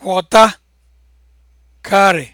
kwọta karị